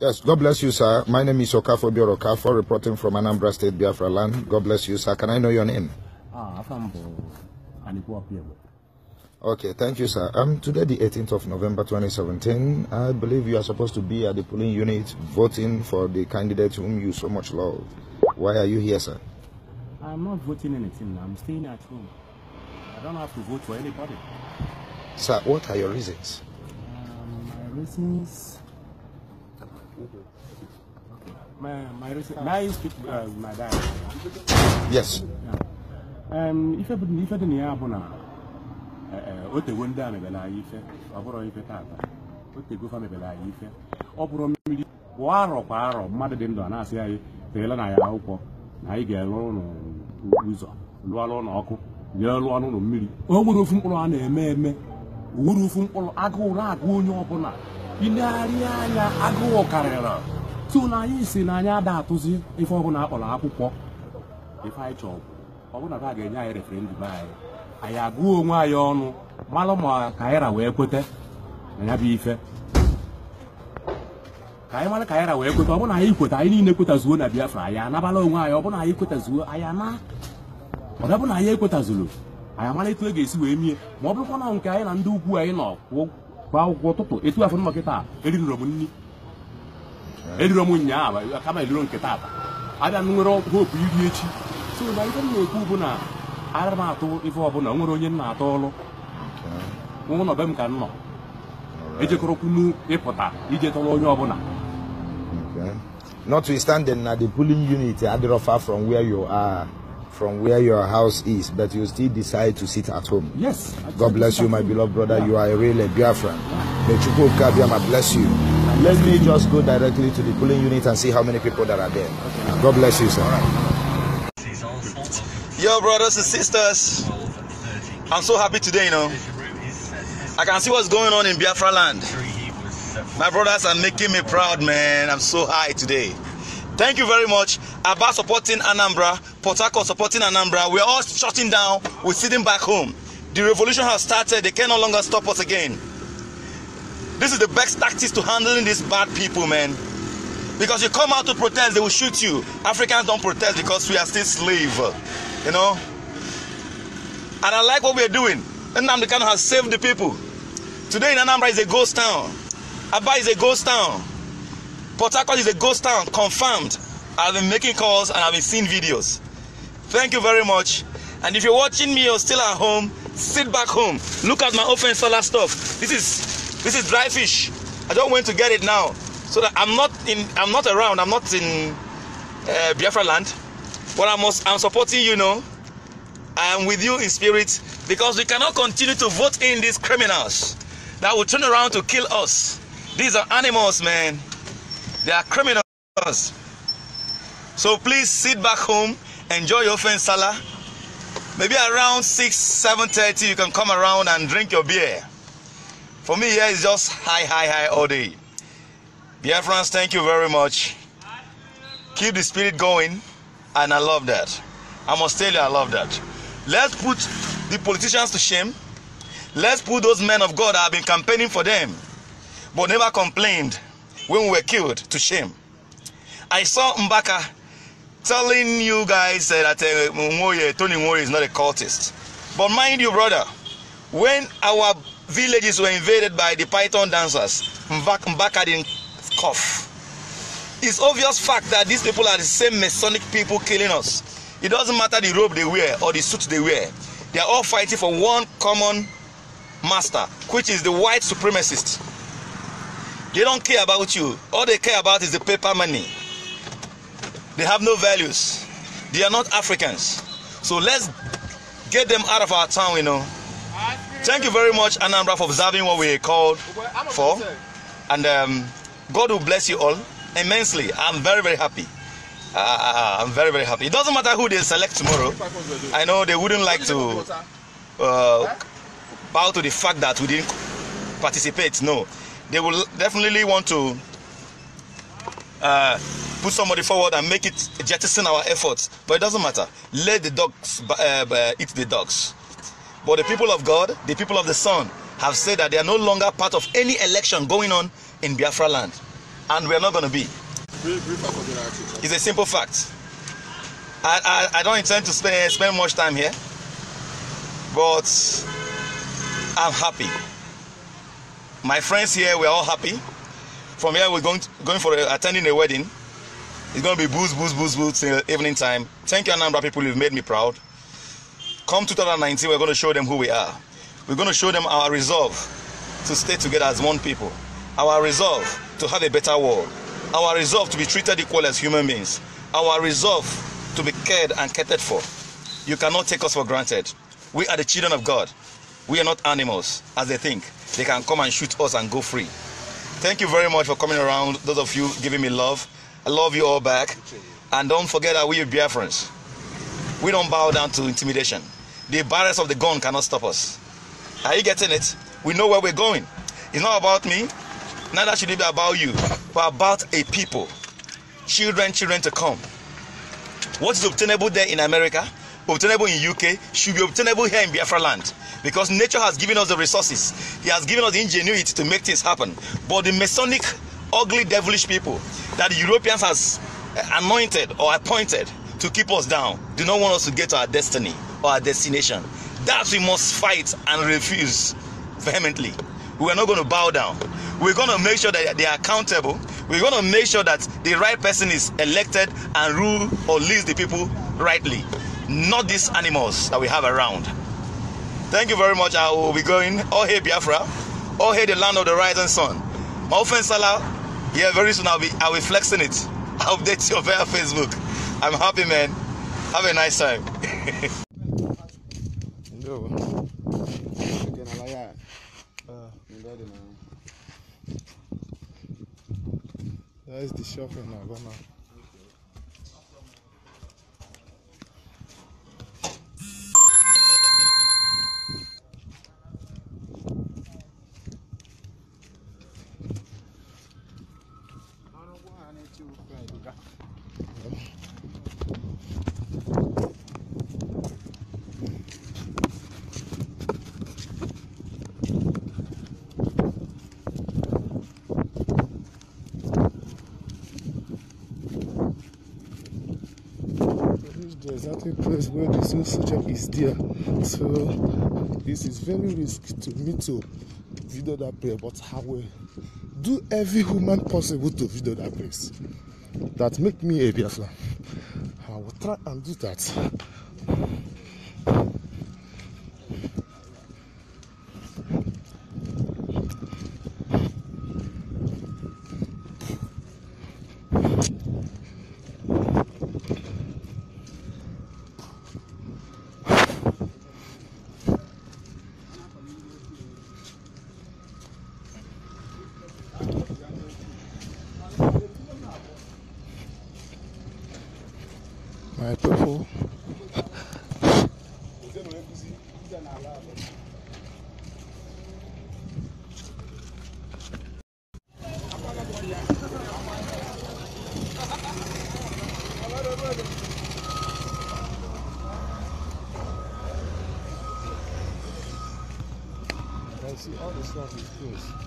Yes, God bless you, sir. My name is Okafo Bioro Okafo, reporting from Anambra State, Biafra land. God bless you, sir. Can I know your name? Ah, Okay, thank you, sir. Um, today, the 18th of November 2017, I believe you are supposed to be at the polling unit voting for the candidate whom you so much love. Why are you here, sir? I'm not voting anything. I'm staying at home. I don't have to vote for anybody. Sir, what are your reasons? Um, my reasons My, my, recent, my uh, my dad. Yes. ife dị na ya bụ na o tego ndị a mebere anyị ife ọ bụrụ ife tata o tego fa anyị ọ bụrụ mmiri kwa arọ kwa arọ mmadụ dị ndụ a na-asị anyị teela na ya akwụkwọ na anyị ga-elụ ụlọ ụzọ lụọla ụlọ ọkụ lụọ n'ụlọ mmiri o nwere ofu mkpụrụ a na-eme eme o ofu mkpụrụ agụụ na-agụ onye ilegharị anya agụụ karịrị na tụnanya na n'anya ada atụzi ife ọbụla akpọrọ akwụkwọ ife anyị chọrọ ọbụla a ga-enye anyị referendum anyị anyị agụọ onwe anyị ọnụ malụ ma kaira wee kweta na ya bụ ife ka anyị mara kaira wee kweta ọbụna anyị kweta anyị niile kwetazuo na biafra anyị anabala onwe anyị ọbụna anyị kwetazuo anyị ana ọdọbụ na anyị ekwetazuru anyị amara etu e ga-esi wee mie ma ọ bụrụkwa na nke anyị na ndị ukwu anyị nọ kwakwụkwọ ụtụtụ etu afọ nma nkịta erirọ m nri eh. erirọ m nyaa kama eliro nkịta ata abịa nwere hopu iri echi so na ife m na-ekwu na ara m atụ ife ọbụla nwere onye m na-atọ ọlụ ụlọ be m ka m nọ ejekọrọkwunu ịpụta ije tọrọ onye ọbụla notwithstanding na the pulling unit adịrọ far from where you are from where your house is, but you still decide to sit at home. Yes. God bless you, my beloved brother. Yeah. You are a real Biafran. May Chukwu Kabiama bless you. let me just go directly to the polling unit and see how many people that are there. Okay. God bless you, sir. Right. Yo, brothers and sisters. I'm so happy today, you know. I can see what's going on in Biafra land. My brothers are making me proud, man. I'm so high today. Thank you very much. About supporting Anambra, Port supporting Anambra. We're all shutting down. We're sitting back home. The revolution has started. They can no longer stop us again. This is the best tactics to handling these bad people, man. Because you come out to protest, they will shoot you. Africans don't protest because we are still slave, you know. And I like what we are doing. Anambra Kanu has saved the people. Today in Anambra is a ghost town. Aba is a ghost town. Port Harcourt is a ghost town, confirmed. I've been making calls and I've been seeing videos. Thank you very much. And if you're watching me or still at home, sit back home. Look at my open solar stuff. This is this is dry fish. I don't want to get it now, so that I'm not in. I'm not around. I'm not in uh, Biafra land. But I must. I'm supporting you know. I am with you in spirit because we cannot continue to vote in these criminals that will turn around to kill us. These are animals, man. They are criminals. So please sit back home, enjoy your fence sala. Maybe around 6, 7.30 you can come around and drink your beer. For me here is just high, high, high all day. Dear friends, thank you very much. Keep the spirit going and I love that. I must tell you I love that. Let's put the politicians to shame. Let's put those men of God that have been campaigning for them but never complained when we were killed to shame. I saw Mbaka telling you guys that uh, Mwoye, Tony Mwoye is not a cultist. But mind you, brother, when our villages were invaded by the python dancers, Mbaka didn't cough. It's obvious fact that these people are the same Masonic people killing us. It doesn't matter the robe they wear or the suit they wear. They are all fighting for one common master, which is the white supremacist. They don't care about you. All they care about is the paper money. They have no values. They are not Africans. So let's get them out of our town, you know. Thank you very much, Anambra, for observing what we called for. And um, God will bless you all immensely. I'm very, very happy. Uh, I'm very, very happy. It doesn't matter who they select tomorrow. I know they wouldn't like to uh, bow to the fact that we didn't participate. No they will definitely want to uh, put somebody forward and make it jettison our efforts. But it doesn't matter. Let the dogs uh, eat the dogs. But the people of God, the people of the Son, have said that they are no longer part of any election going on in Biafra land. And we are not going to be. It's a simple fact. I, I, I don't intend to spend, spend much time here, but I'm happy. My friends here, we're all happy. From here, we're going to, going for a, attending a wedding. It's going to be booze, booze, booze, booze till evening time. Thank you, Anambra people. You've made me proud. Come 2019, we're going to show them who we are. We're going to show them our resolve to stay together as one people, our resolve to have a better world, our resolve to be treated equal as human beings, our resolve to be cared and catered for. You cannot take us for granted. We are the children of God. We are not animals, as they think. They can come and shoot us and go free. Thank you very much for coming around, those of you giving me love. I love you all back. And don't forget that we are Biafrans. We don't bow down to intimidation. The barriers of the gun cannot stop us. Are you getting it? We know where we're going. It's not about me, neither should it be about you, but about a people. Children, children to come. What is obtainable there in America obtainable in UK should be obtainable here in Biafra land because nature has given us the resources. He has given us the ingenuity to make things happen. But the Masonic, ugly, devilish people that the Europeans has eh, anointed or appointed to keep us down do not want us to get to our destiny or our destination. That we must fight and refuse vehemently. We are not going to bow down. We're going to make sure that they are accountable. We're going to make sure that the right person is elected and rule or leads the people rightly not these animals that we have around. Thank you very much. I will be going. Oh, hey, Biafra. Oh, hey, the land of the rising sun. My friend Salah, yeah, very soon I'll be, I'll be flexing it. I'll update you via Facebook. I'm happy, man. Have a nice time. That's the shopping now, the exact place where the soldier is there. So this is very risky to me to video that place. but how will do every human possible to video that place. That make me a Biafra. I will try and do that. see all the stuff is close.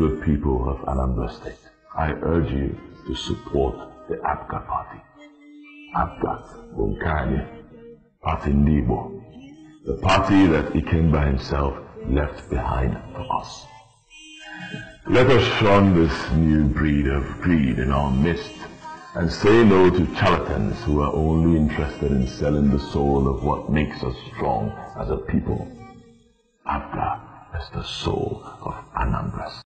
good people of Anambra State, I urge you to support the APGA party. APGA bụ nke party ndị Igbo. The party that Ikemba himself left behind for us. Let us shun this new breed of greed in our midst and say no to charlatans who are only interested in selling the soul of what makes us strong as a people. Abda is the soul of Anambra.